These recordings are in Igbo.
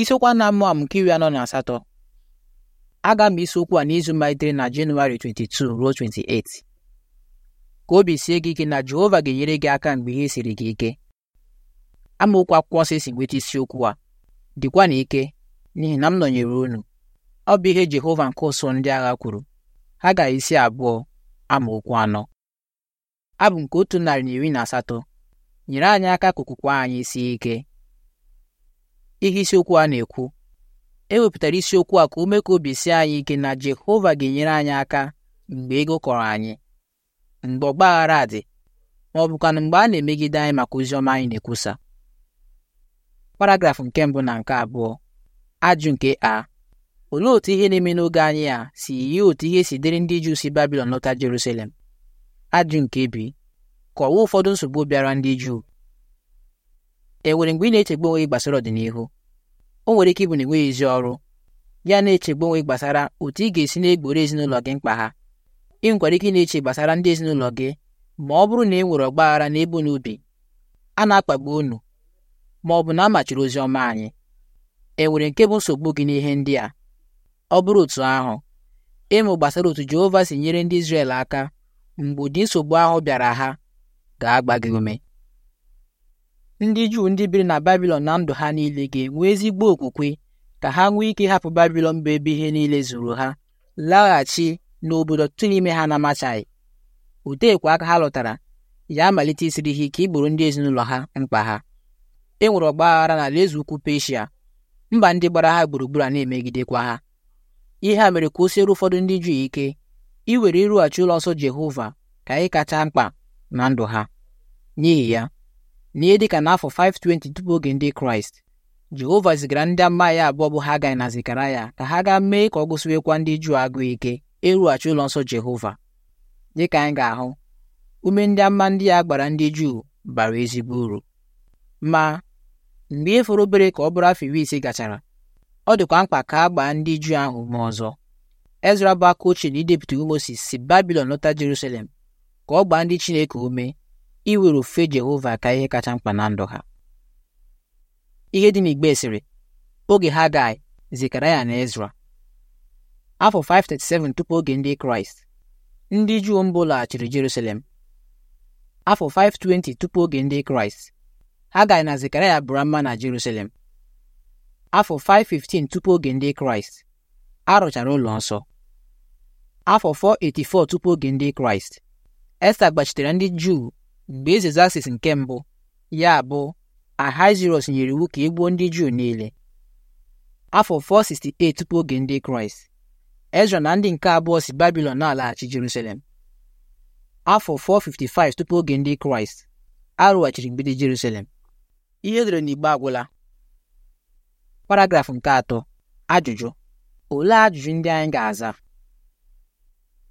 isiokwu a na-amụ amụ nke iri anọ na asatọ a ga isi isiokwu a n'izu malitere na Jenụwarị 22 ruo 28 ka obi sie gị ike na Jehova ga-enyere gị aka mgbe ihe siri gị ike amaokwu akwụkwọ nsọ si nweta isiokwu a dịkwa na ike n'ihi na m nọnyere unu ọ bụ ihe Jehova nke ụsọ ndị agha kwuru ha gara isi abụọ amaokwu anọ abụ nke otu narị na iri na asatọ nyere anyị aka ka okwukwe anyị sie ike ihe isiokwu a na-ekwu e wepụtara isiokwu a ka ume ka obi sie anyị ike na Jehova ga-enyere anyị aka mgbe ego kọrọ anyị mgbe ọgbaghara dị ma ọ bụkwa na mgbe a na-emegide anyị maka ozi ọma anyị na-ekwusa paragrafụ nke mbụ na nke abụọ ajụ nke a olee otu ihe na-eme n'oge anyị a si yie otu ihe si dịrị ndị Juu si Babilọn lọta Jerusalem ajụ nke bi kọwaa ụfọdụ nsogbu bịara ndị Juu e nwere mgbe ị na-echegbu onwe gbasara ọdịnihu o nwere ike ịbụ na enweghị ezi ọrụ ya na-echegbu onwe gbasara otu ị ga-esi na-egboro ezinụlọ gị mkpa ha ị nkwara ike na-eche gbasara ndị ezinụlọ gị ma ọ bụrụ na e nwere ọgbaghara n'ebe unu bi a na-akpagbu unu ma ọ bụ na a machiri ozi ọma anyị e nwere nke bụ nsogbu gị n'ihe ndị a ọ bụrụ otu ahụ ịmụ gbasara otu Jehova si nyere ndị Izrel aka mgbe ụdị nsogbu ahụ bịara ha ga-agba gị ume ndị Juu ndị biri na Babilọn na ndụ ha niile ga-enwe ezigbo okwukwe ka ha nwee ike ịhapụ Babilọn bụ ebe ihe niile zuru ha laghachi n'obodo tụrụ ime ha na-amachaghị oteekwa aka ha lụtara ya amalite isiri ha ike igboro ndị ezinụlọ ha mkpa ha e nwere ọgba aghara n'ala eze ukwu Peshia mba ndị gbara ha gburugburu a na-emegidekwa ha ihe a mere ka o siere ụfọdụ ndị Juu ike iwere ịrụghachi ụlọ nsọ Jehova ka anyị kacha mkpa na ndụ ha n'ihi ya n'ihe dịka n'afọ 520 tupu oge ndị kraịst jehova zigara ndị ama ya abụọ bụ ha hagai na ya ka ha gaa mee ka ọ gụsiwekwa ndị juu agụụ ike ịrụghachi ụlọ nsọ jehova dịka anyị ga-ahụ ume ndị ama ndị ya gbara ndị juu bara ezigbo uru ma mgbe e obere ka ọ bụrụ afọ iri ise gachara ọ dịkwa mkpa ka a gbaa ndị juu ahụ ma ọzọ ezra bụ aka ochie na idepụta Mozis si babilon lọta jerusalem ka ọ gbaa ndị chineke ume were ofufe Jehova ka ihe kacha mkpa na ndụ ha ihe dị n'igbe sịrị oge ha Hagai Zekaraya na Ezra afọ 537 tupu oge ndị Kraịst ndị Juu mbụ laghachiri Jerusalem afọ 520 tupu oge ndị Kraịst ha Hagai na Zekaraya bụra mma na Jerusalem afọ 515 tupu oge ndị Kraịst arụchara ụlọ nsọ afọ 484 tupu oge ndị Kraịst Esta gbachitere ndị Juu mgbe eze Zasis nke mbụ ya bụ Ahasuerọs nyere iwu ka egbuo gbuo ndị Juu niile afọ 468 tupu oge ndị Kraịst Ezra na ndị nke abụọ si Babilọn na-alaghachi Jerusalem afọ 455 tupu oge ndị Kraịst arụghachiri mgbidi Jerusalem ihe edere n'igbe agwụla paragrafụ nke atọ ajụjụ olee ajụjụ ndị anyị ga-aza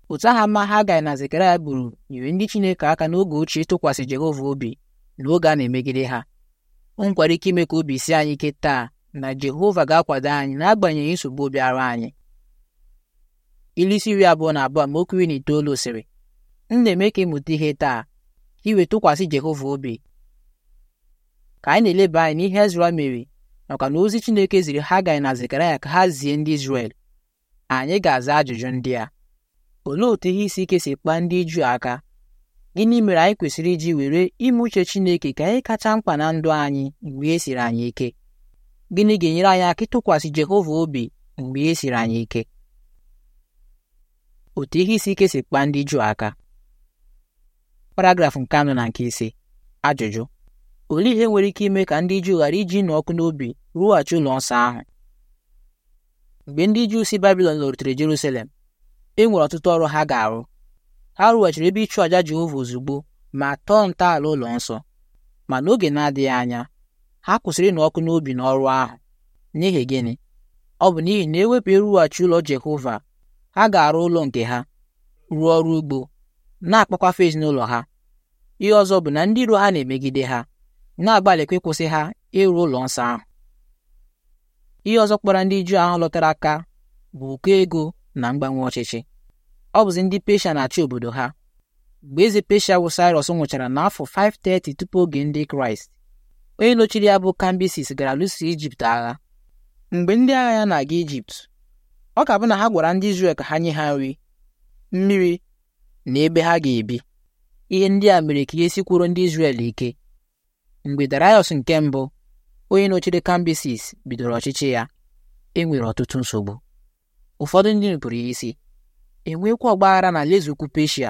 otu aha mma ha Hagai na Zekaraya gburu nyere ndị Chineke aka n'oge ochie ịtụkwasị Jehova obi na oge a na-emegide ha o ike ime ka obi sie anyị ike taa na Jehova ga-akwado anyị n'agbanyeghị nsogbu obi ara anyị ilu isi iri abụọ na abụọ ma okiri na itoolu sịrị m na-eme ka ịmụta ihe taa iwe tụkwasị Jehova obi ka anyị na-eleba anyị n'ihe Ezra mere nakwa na ozi Chineke ziri ha Hagai na Zekaraya ka ha zie ndị Izrel anyị ga-aza ajụjụ ndị a olee otu ihe isi ike si kpaa ndị Juu aka gịnị mere anyị kwesịrị iji were ime uche Chineke ka anyị kacha mkpa na ndụ anyị mgbe e siri anyị ike gịnị ga-enyere anyị aka ịtụkwasị Jehova obi mgbe e siri anyị ike otu ihe isi ike si kpaa ndị Juu aka paragraf nke anọ na nke ise ajụjụ olee ihe nwere ike ime ka ndị Juu ghara iji nụ ọkụ n'obi rụghachi ụlọ nsọ ahụ mgbe ndị Juu si Babilọn lọrutere Jerusalem enwere ọtụtụ ọrụ ha ga-arụ ha rụghachiri ebe ịchụ àjà Jehova ozugbo ma tọọ ntọala ụlọ nsọ ma n'oge na-adịghị anya ha kwụsịrị ịnụ ọkụ n'obi n'ọrụ ahụ n'ihi gịnị ọ bụ n'ihi na ewepụ ịrụghachi ụlọ Jehova ha ga-arụ ụlọ nke ha rụọ ọrụ ugbo na-akpakwafe ezinụlọ ha ihe ọzọ bụ na ndị iro ha na-emegide ha na-agbalịkwa ịkwụsị ha ịrụ ụlọ nsọ ahụ ihe ọzọ kpara ndị Juu ahụ lọtara aka bụ ụkọ ego na mgbanwe ọchịchị ọ bụzi ndị Peshia na-achị obodo ha mgbe eze Peshia bụ Cyrus nwụchara n'afọ 530 tupu oge ndị Kraịst onye nọchiri ya bụ Kambisis gara lụso Ijipt agha mgbe ndị agha ya na-aga Ijipt ọ ka bụ na ha gwara ndị Izrel ka ha nye ha nri mmiri na ebe ha ga-ebi ihe ndị a mere ka ihe sikwuru ndị Izrel ike mgbe Darius nke mbụ onye nọchiri Kambisis bidoro ọchịchị ya e nwere ọtụtụ nsogbu ụfọdụ ndị nupụrụ ya isi enwekwa ọgbaghara na alaeze ukwu Peshia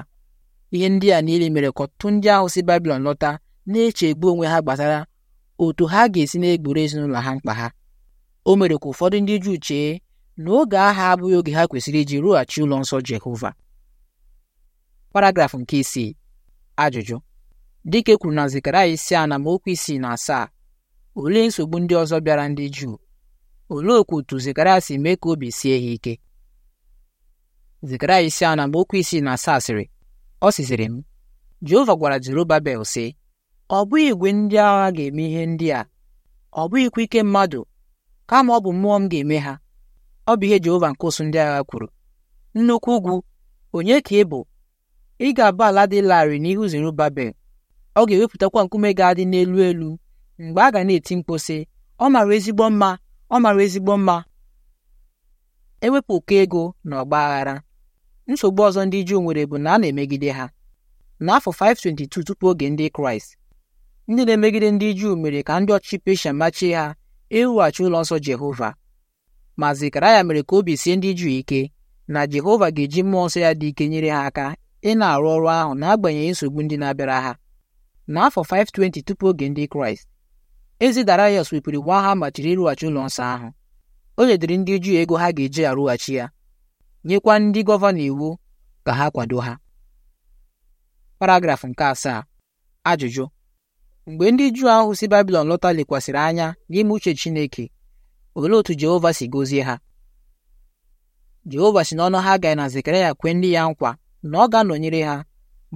ihe ndị a niile mere ka ọtụtụ ndị ahụ si Babilọn lọta na-echegbu onwe ha gbasara otu ha ga-esi na-egboro ezinụlọ ha mkpa ha o mere ka ụfọdụ ndị Juu chee na oge agha abụghị oge ha kwesịrị iji rụghachi ụlọ nsọ Jehova paragraf nke isii ajụjụ dịka kwuru na zikara isi a na amaokwu isii na asaa olee nsogbu ndị ọzọ bịara ndị Juu olee okwu otu Zekaraya si mee ka obi sie ha ike Zekaraya isi anọ okwu isi na asaa sịrị ọ sịsịrị m Jehova gwara Jerubabel sị ọ bụghị igwe ndị agha ga-eme ihe ndị a ọ bụghịkwa ike mmadụ kama ọ bụ mmụọ m ga-eme ha ọ bụ ihe Jehova nke ụsụ ndị agha kwuru nnukwu ugwu onye ka ị bụ ị ga-abụ ala dị larịị n'ihu Zerubabel ọ ga-ewepụtakwa nkume ga-adị n'elu elu mgbe a ga na-eti mkpu sị ọ mara ezigbo mma ọ mara ezigbo mma ewepụ ụkọ ego na ọgbaghara nsogbu ọzọ ndị Juu nwere bụ na a na-emegide ha n'afọ 522 tupu oge ndị Kraịst ndị na-emegide ndị Juu mere ka ndị ọchịchị Peshia machie ha iwughachi ụlọ nsọ Jehova ma ya mere ka obi sie ndị Juu ike na Jehova ga-eji mmụọ nsọ ya dị ike nyere ha aka ị na-arụ ọrụ ahụ n'agbanyeghị nsogbu ndị na-abịara ha n'afọ 520 tupu oge ndị Kraịst eze Daraiọs wepụrụ gwa agha ma ịrụghachi ụlọ nsọ ahụ o nyedịrị ndị Juu ego ha ga-eji arụghachi ya nyekwa ndị gọvanọ iwu ka ha kwado ha paragraf nke asaa ajụjụ mgbe ndị Juu ahụ si Babilọn lọta lekwasịrị anya n'ime uche Chineke olee otu Jehova si gọzie ha Jehova si n'ọnụ ha gaghị na Zekaraya kwee ndị ya nkwa na ọ ga-anọnyere ha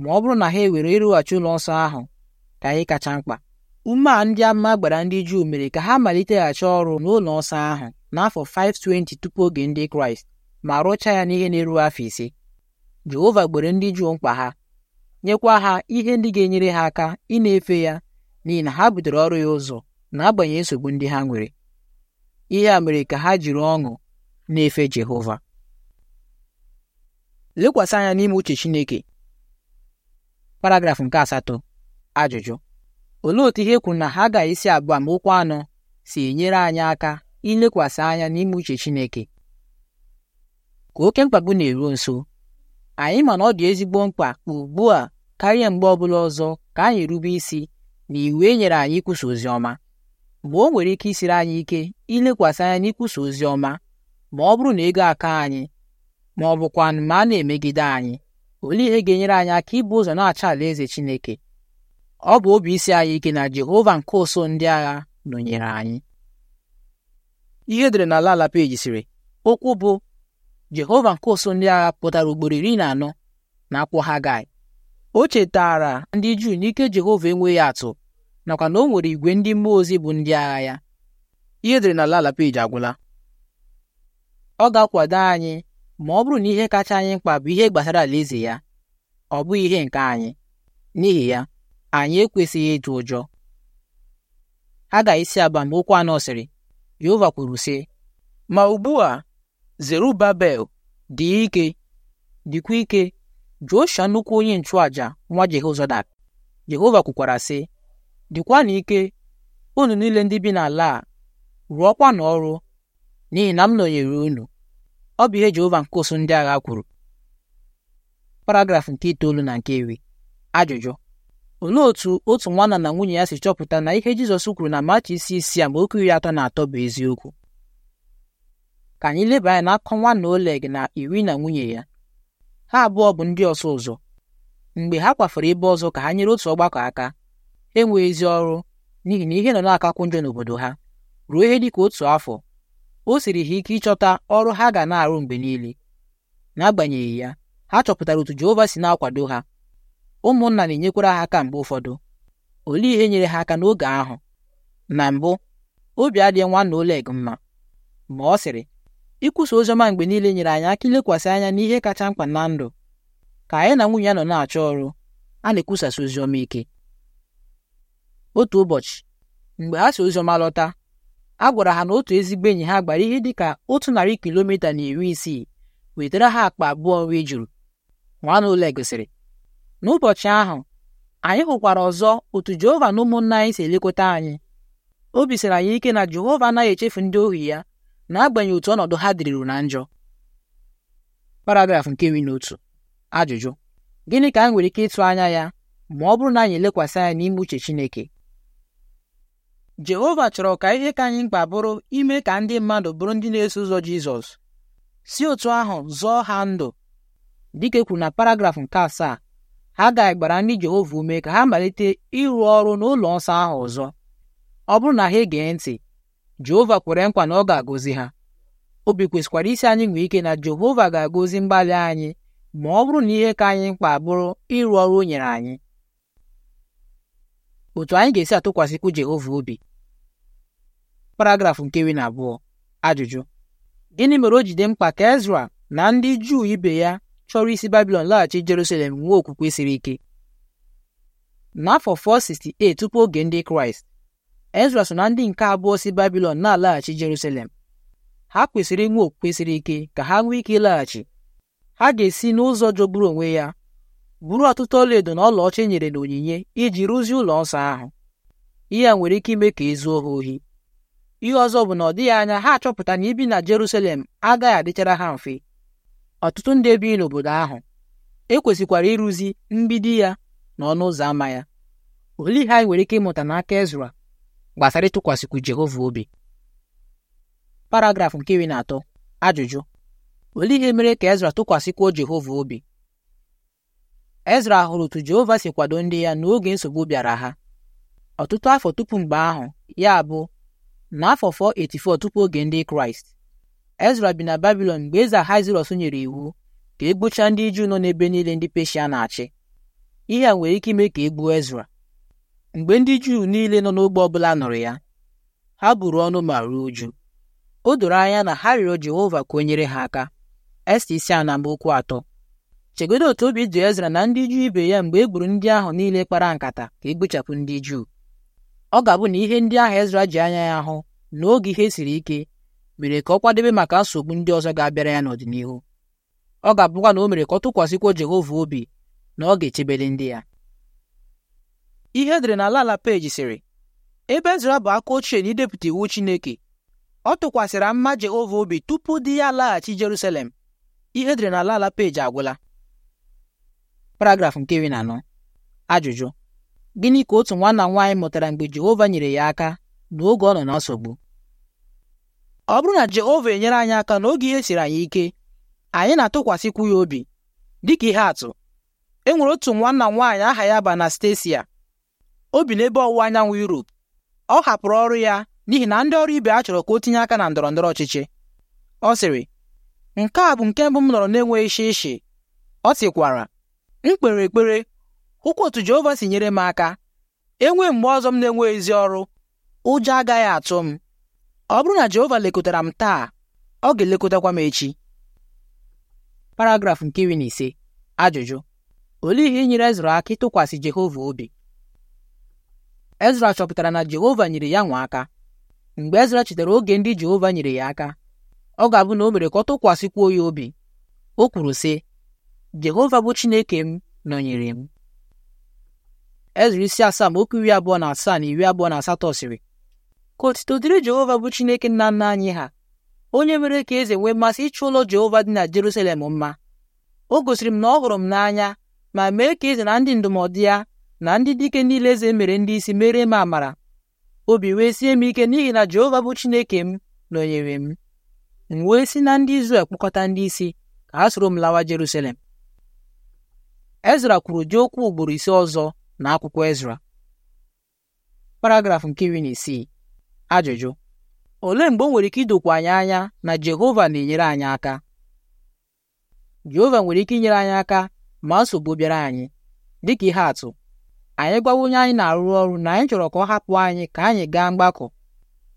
ma ọ bụrụ na ha ewere ịrụghachi ụlọ nsọ ahụ ka anyị kacha mkpa Ume a ndị ama gbara ndị Juu mere ka ha maliteghachi ọrụ n'ụlọ ọsọ ahụ n'afọ 520 tupu oge ndị Kraịst ma rụchaa ya n'ihe na-eru afọ ise. Jehova gbere ndị Juu mkpa ha nyekwa ha ihe ndị ga-enyere ha aka ị na-efe ya n'ihi na ha butere ọrụ ya ụzọ n'agbanyeghị nsogbu ndị ha nwere. Ihe a mere ka ha jiri ọṅụ na-efe Jehova. Lekwasị anya n'ime uche Chineke. paragrafụ nke asatọ ajụjụ olee otu ihe kwuru na ha ga isi abụọ amaokwu anọ si enyere anyị aka ilekwasị anya n'ime uche Chineke ka oke mkpagbu na-eruo nso anyị ma na ọ dị ezigbo mkpa ugbu a karịa mgbe ọbụla ọzọ ka anyị rube isi na iwu e nyere anyị ikwusa ozi ọma mgbe o nwere ike isiri anyị ike ilekwasị anya n'ikwusa ozi ọma ma ọ bụrụ na ego aka anyị ma ọ bụkwa ma a na-emegide anyị olee ihe ga-enyere anyị aka ịbụ ụzọ na-acha alaeze Chineke ọ bụ obi isi anyị ike na Jehova nke ụsụ ndị agha nọnyere anyị ihe edere na ala ala peji sịrị okwu bụ Jehova nke ụsụ ndị agha pụtara ugboro iri na anọ na akwụkwọ gai o chetara ndị Juu n'ike Jehova enweghị atụ nakwa na o nwere igwe ndị mmụọ ozi bụ ndị agha ya ihe edere na ala ala peji agwụla ọ ga-akwado anyị ma ọ bụrụ na ihe kacha anyị mkpa bụ ihe gbasara alaeze ya ọ bụghị ihe nke anyị n'ihi ya anyị ekwesịghị ịtụ ụjọ Aga isi aba mgbe okwu anọ sịrị Jehova kwuru sị ma ugbu a Zerubabel dị ike dịkwa ike Josha nnukwu onye nchụaja nwa Jehozadak Jehova kwukwara sị na ike unu niile ndị bi n'ala a na ọrụ n'ihi na m nọnyere unu ọ bụ ihe Jehova nke ndị agha kwuru paragraf nke itoolu na nke iri ajụjụ olee otu otu nwanna na nwunye ya si chọpụta na ihe Jizọs kwuru na Machi isi isi ma amaokwu iri atọ na atọ bụ eziokwu ka anyị leba anya n'akụkọ nwanna Oleg na iri na nwunye ya ha abụọ bụ ndị ọsụ ụzọ mgbe ha kwafere ebe ọzọ ka ha nyere otu ọgbakọ aka enweghị ezi ọrụ n'ihi na ihe nọ na-akakwu njọ n'obodo ha ruo ihe dịka otu afọ o siri ha ike ịchọta ọrụ ha ga na-arụ mgbe niile n'agbanyeghị ya ha chọpụtara otu Jehova si na-akwado ha ụmụnna na-enyekwara ha aka mgbe ụfọdụ olee ihe nyere ha aka n'oge ahụ na mbụ obi adịghị nwanna Oleg mma ma ọ sịrị ikwusa oziọma mgbe niile nyere anyị aka ilekwasị anya n'ihe kacha mkpa na ndụ ka anyị na nwunye ya nọ na-achọ ọrụ a na-ekwusasị oziọma ike otu ụbọchị mgbe ha si oziọma lọta a gwara ha na otu ezigbo enyi ha gbara ihe dị ka otu narị kilomita na iri isii wetara ha akpa abụọ nri juru nwana Oleg sịrị n'ụbọchị ahụ anyị hụkwara ọzọ otu Jehova na ụmụnna anyị si elekọta anyị obi siri anyị ike na Jehova anaghị echefu ndị ohi ya n'agbanyeghị otu ọnọdụ ha dịrịrụ na njọ paragraf nke iri na otu ajụjụ gịnị ka anyị nwere ike ịtụ anya ya ma ọ bụrụ na anyị elekwasị anya n'ime uche Chineke Jehova chọrọ ka ihe ka anyị mkpa bụrụ ime ka ndị mmadụ bụrụ ndị na-eso ụzọ Jizọs si otu ahụ zọọ ha ndụ dịka e kwuru na paragraf nke asaa Hagai gbara ndị Jehova ume ka ha malite ịrụ ọrụ n'ụlọ nsọ ahụ ọzọ ọ bụrụ na ha egee ntị Jehova kwere nkwa na ọ ga-agọzi ha obi kwesịkwara isi anyị nwee ike na Jehova ga-agọzi mgbalị anyị ma ọ bụrụ na ihe ka anyị mkpa bụrụ ịrụ ọrụ o nyere anyị otu anyị ga-esi atụkwasịkwu Jehova obi paragraf nke iri na abụọ ajụjụ gịnị mere o jide mkpa ka Ezra na ndị Juu ibe ya chọrọ isi babilon laghachi jerusalem nwee okwukwe siri ike n'afọ 468 tupu oge ndị kraịst ezra so na ndị nke abụọ si babilon na-alaghachi jerusalem ha kwesịrị inwe okwukwe siri ike ka ha nwee ike ịlaghachi ha ga-esi n'ụzọ jọgburu onwe ya buru ọtụtụ ọlaedo na ọlaọcha e nyere n'onyinye iji rụzie ụlọ nsọ ahụ ihe a nwere ike ime ka ezuo ha ohi ihe ọzọ bụ na ọ dịghị anya ha achọpụta na ibi na Jerusalem agaghị adịchara ha mfe ọtụtụ ndị bi n'obodo ahụ ekwesịkwara ịrụzi mgbidi ya na ọnụ ụzọ ámá ya olee ihe anyị nwere ike ịmụta n'aka Ezra gbasara ịtụkwasịkwu Jehova obi paragrafụ nke iri na atọ ajụjụ olee ihe mere ka Ezra tụkwasịkwuo Jehova obi Ezra hụrụ otu Jehova si kwado ndị ya n'oge nsogbu bịara ha ọtụtụ afọ tupu mgbe ahụ ya bụ n'afọ 484 tupu oge ndị Kraịst Ezra bi na Babilọn mgbe eze Ahasuerọs nyere iwu ka e gbuchaa ndị Juu nọ n'ebe niile ndị Peshia na-achị ihe a nwere ike ime ka e gbuo Ezra mgbe ndị Juu niile nọ n'ogbe ọbụla nụrụ ya ha buru ọnụ ma ruo uju o doro anya na ha rịọrọ Jehova ka o nyere ha aka Esta isi na okwu atọ chegodo otu obi dị Ezra na ndị Juu ibe ya mgbe e gburu ndị ahụ niile kpara nkata ka e gbuchapụ ndị Juu ọ ga-abụ na ihe ndị ahụ Ezra ji anya ya hụ n'oge ihe siri ike mere ka ọ kwadebe maka nsogbu ndị ọzọ ga-abịara ya n'ọdịnihu ọ ga-abụkwa na o mere ka ọ tụkwasịkwa Jehova obi na ọ ga-echebele ndị ya ihe edere na ala ala peji sịrị ebe Ezra bụ aka ochie na idepụta iwu Chineke ọ tụkwasịrị mma Jehova obi tupu di ya laghachi Jerusalem ihe edere na ala ala agwụla paragrafụ nke iri na anọ ajụjụ gịnị ka otu nwanna nwaanyị mụtara mgbe Jehova nyere ya aka n'oge ọ nọ na nsogbu ọ bụrụ na Jehova enyere anyị aka n'oge ihe siri anyị ike anyị na-atụkwasịkwu ya obi dịka ihe atụ e nwere otu nwanna m nwaanyị aha ya bụ Anastasia obi n'ebe ọwụwa anyanwụ Europe ọ hapụrụ ọrụ ya n'ihi na ndị ọrụ ibe a chọrọ ka o tinye aka na ndọrọ ndọrọ ọchịchị ọ sịrị nke a bụ nke mbụ m nọrọ na-enweghị shishi ọ sịkwara m kpere ekpere hụkwa otu Jehova si nyere m aka enwee mgbe ọzọ m na enweghị ezi ọrụ ụjọ agaghị atụ m ọ bụrụ na Jehova lekọtara m taa ọ ga-elekọtakwa m echi paragrafụ nke iri na ise ajụjụ olee ihe nyere Ezra aka ịtụkwasị Jehova obi Ezra chọpụtara na Jehova nyere ya nwa aka mgbe Ezra chetara oge ndị Jehova nyere ya aka ọ ga-abụ na o mere ka ọ tụkwasịkwuo ya obi o kwuru sị Jehova bụ Chineke m nọnyere m Ezra isi asaa ma okwu iri abụọ na asaa na iri abụọ na asatọ sịrị ka otito dịrị Jehova bụ Chineke nna nna anyị ha onye mere ka eze nwee mmasị ịchụ ụlọ Jehova dị na Jerusalem mma o gosiri m na ọ hụrụ m n'anya ma mee ka eze na ndị ndụmọdụ ya na ndị dike niile eze mere ndị isi mere m amara obi wee sie m ike n'ihi na Jehova bụ Chineke m nọnyere m m wee si na ndị Izrel kpọkọta ndị isi ka ha soro m lawa Jerusalem Ezra kwuru dị okwu ugboro ise ọzọ na akwụkwọ Ezra paragrafụ nke iri na isii Ajụjụ: Olee mgbe o nwere ike idokwu anyị anya na Jehova na-enyere anyị aka? Jehova nwere ike inyere anyị aka ma nsogbu bịara anyị dịka ihe atụ anyị gwawa onye anyị na-arụ ọrụ na anyị chọrọ ka ọ hapụ anyị ka anyị gaa mgbakọ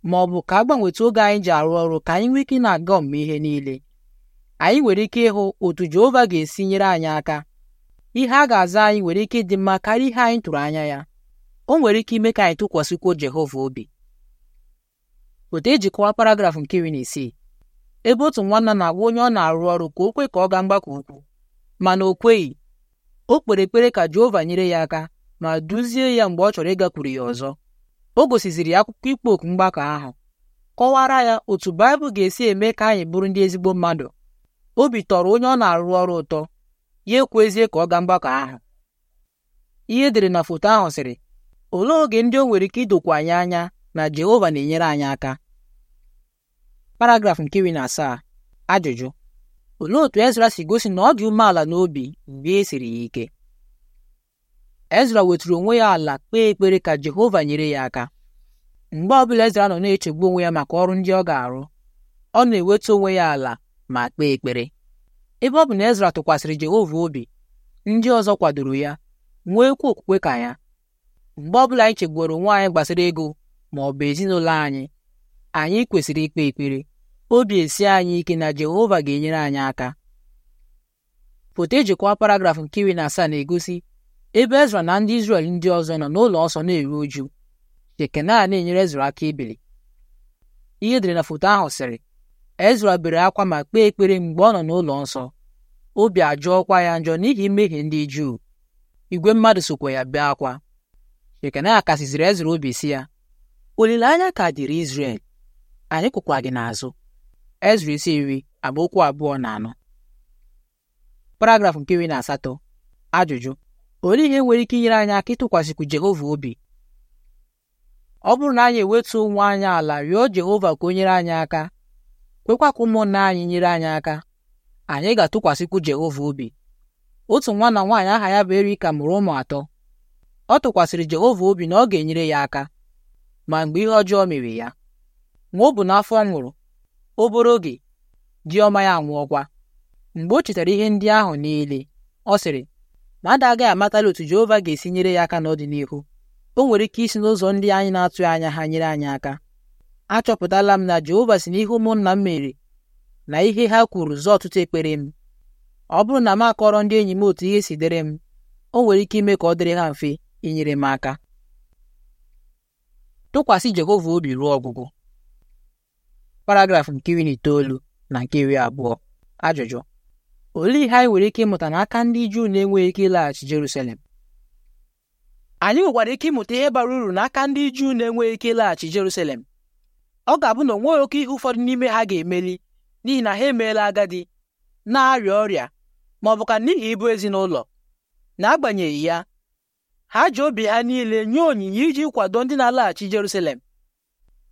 ma ọ bụ ka a gbanwetụ oge anyị ji arụ ọrụ ka anyị nwee ike na-aga ọmụme ihe niile anyị nwere ike ịhụ otu Jehova ga-esi nyere anyị aka ihe a ga-aza anyị nwere ike ịdị mma karịa ihe anyị tụrụ anya ya o nwere ike ime ka anyị tụkwasịkwuo Jehova obi otu ejikọwa paragrafụ nke iri na isii ebe otu nwanna na-agwa onye ọ na-arụ ọrụ ka o kwe ka ọ gaa mgbakọ ukwu mana o kweghị o kpere ekpere ka Jehova nyere ya aka ma duzie ya mgbe ọ chọrọ ịgakwuru ya ọzọ o gosiziri ya akwụkwọ ikpo oku mgbakọ ahụ kọwara ya otu Baịbụl ga-esi eme ka anyị bụrụ ndị ezigbo mmadụ obi tọrọ onye ọ na-arụ ọrụ ụtọ ya ekwezie ka ọ gaa mgbakọ ahụ ihe edere na foto ahụ sịrị olee oge ndị o nwere ike idokwa anyị anya na Jehova na-enyere anyị aka paragraf nke iri na asaa ajụjụ olee otu Ezra si gosi na ọ dị umeala n'obi mgbe e siri ya ike Ezra wetụrụ onwe ya ala kpee ekpere ka Jehova nyere ya aka mgbe ọbụla Ezra nọ na-echegbu onwe ya maka ọrụ ndị ọ ga-arụ ọ na-ewetu onwe ya ala ma kpee ekpere ebe ọ bụ na Ezra tụkwasịrị Jehova obi ndị ọzọ kwadoro ya kwu okwukwe ka ya mgbe ọbụla anyị chegburu onwe anyị gbasara ego ma ọ bụ ezinụlọ anyị anyị kwesịrị ikpe ekpere obi esi anyị ike na Jehova ga-enyere anyị aka foto ejikwa paragrafụ nke iri na asaa na-egosi ebe Ezra na ndị Izrel ndị ọzọ nọ n'ụlọ ọsọ na-eru uju Jekena na-enyere Ezra aka ibili ihe dịrị na foto ahụ sịrị Ezra bere akwa ma kpee ekpere mgbe ọ nọ n'ụlọ nsọ obi ajụọkwa ya njọ n'ihi mmehie ndị Juu igwe mmadụ sokwa ya bee akwa Jekena kasiziri Ezra obi si ya olileanya ka dịrị Izrel anyị kwụkwa gị n'azụ Ezra isi iri amaokwu abụọ na anọ paragrafụ nke iri na asatọ ajụjụ olee ihe nwere ike inyere anyị aka ịtụkwasịkwu Jehova obi ọ bụrụ na anyị ewetu nwa anyị ala rịọ Jehova ka o nyere anyị aka kwekwa ka ụmụnna anyị nyere anyị aka anyị ga-atụkwasịkwu Jehova obi otu nwa na nwaanyị aha ya bụ Erika mụrụ ụmụ atọ ọ tụkwasịrị Jehova obi na ọ ga-enyere ya aka ma mgbe ihe ọjọọ mere ya nwa ọ bụ n'afọ nwụrụ obere oge diọma ya anwụọkwa mgbe o chetara ihe ndị ahụ niile ọ sịrị ma ada agaghị amatala otu Jehova ga-esi nyere ya aka n'ọdịnihu o nwere ike isi n'ụzọ ndị anyị na-atụghị anya ha nyere anyị aka achọpụtala m na Jehova si n'ihu ụmụnna m mere na ihe ha kwuru zọọ ọtụtụ ekpere m ọ bụrụ na m akọrọ ndị enyi m otu ihe si dịrị m o nwere ike ime ka ọ dịrị ha mfe inyere m aka tụkwasị Jehova obi ruo ọgwụgwụ paragrafụ nke iri na itoolu na nke iri abụọ ajụjụ olee ihe anyị nwere ike ịmụta n'aka ndị Juu na-enweghị ike ịlaghachi Jerusalem anyị nwekwara ike ịmụta ihe bara uru n'aka ndị Juu na-enweghị ike ịlaghachi Jerusalem ọ ga-abụ na onweghị oke ihe ụfọdụ n'ime ha ga-emeli n'ihi na ha emeela agadi na-arịa ọrịa ma ọ bụ ka n'ihi ịbụ ezinụlọ n'agbanyeghị ya ha ji obi ha niile nye onyinye iji kwado ndị na-alaghachi Jerusalem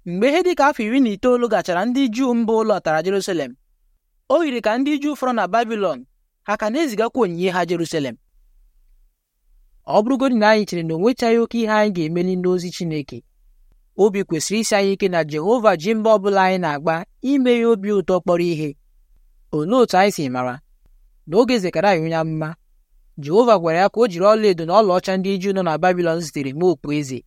mgbe ihe dị ka afọ iri na itoolu gachara ndị juu mba ụlọ tara Jerusalem o yiri ka ndị juu fọrọ na Babilọn ha ka na-ezigakwa onyinye ha Jerusalem ọ bụrụgodị na anyị chere na onwechaghị oke ihe anyị ga-emeli n'ozi Chineke obi kwesịrị isi anyị ike na Jehova ji mba ọ bụla anyị na-agba ime ya obi ụtọ kpọrọ ihe olee otu anyị si mara n'oge Zekaraya onye amụma Jehova gwara ya ka o jiri ọlaedo na ọlaọcha ndị Juu nọ na Babilọn zitere mee okpueze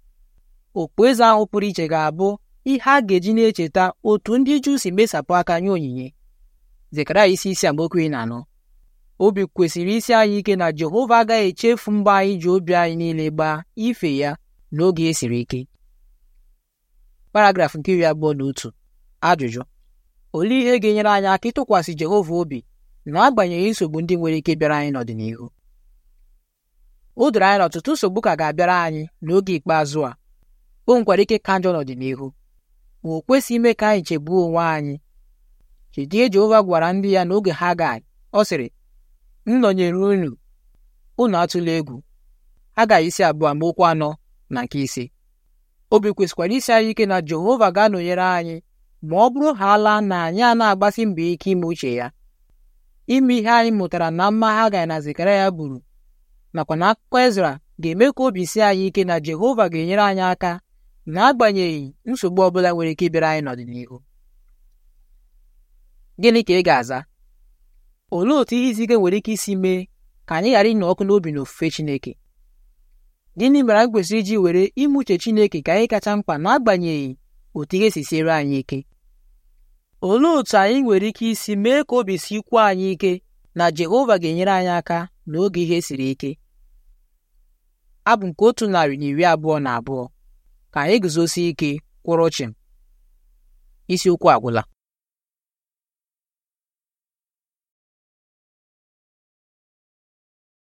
okpueze ahụ pụrụ iche ga-abụ ihe a ga-eji na-echeta otu ndị Juu si mesapụ aka nye onyinye anyị isi isi amaokwu ị na-anọ obi kwesịrị isi anyị ike na Jehova agaghị echefu mgbe anyị ji obi anyị niile gbaa ife ya n'oge e siri ike paragrafụ nke iri abụọ na otu ajụjụ olee ihe ga-enyere anyị aka ịtụkwasị Jehova obi na-agbanyeghị nsogbu ndị nwere ike bịara anyị n'ọdịnihu o doro anyị na ọtụtụ nsogbu ka ga-abịara anyị n'oge ikpeazụ a o nwekwara ike ka njọ n'ọdịnihu ma o kwesị ime ka anyị chegbuo onwe anyị chedie Jehova gwara ndị ya n'oge Haggai ọ sịrị m nọnyere unu unu atụla egwu Haggai isi abụọ okwu anọ na nke ise obi kwesịkwara isi anyị ike na Jehova ga-anọnyere anyị ma ọ bụrụ ha ala na anyị a na-agbasi mbọ ike ime uche ya ime ihe anyị mụtara na mma ha Haggai na zikara ya buru nakwa na akụkọ Ezra ga-eme ka obi si anyị ike na Jehova ga-enyere anyị aka n'agbanyeghị nsogbu ọ bụla nwere ike ịbịara anyị n'ọdịnihu gịnị ka ị ga-aza olee otu ihe izi ike nwere ike isi mee ka anyị ghara ịnọ ọkụ n'obi na ofufe Chineke gịnị mere anyị kwesịrị iji were ime uche Chineke ka anyị kacha mkpa n'agbanyeghị otu ihe si siere anyị ike olee otu anyị nwere ike isi mee ka obi si kwuo anyị ike na Jehova ga-enyere anyị aka n'oge ihe siri ike abụ nke otu narị na iri abụọ na abụọ ka anyị guzosie ike kwụrụ isi isiokwu agwụla